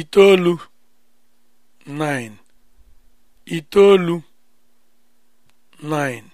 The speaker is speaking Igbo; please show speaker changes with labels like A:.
A: itoolu 9 itoolu 9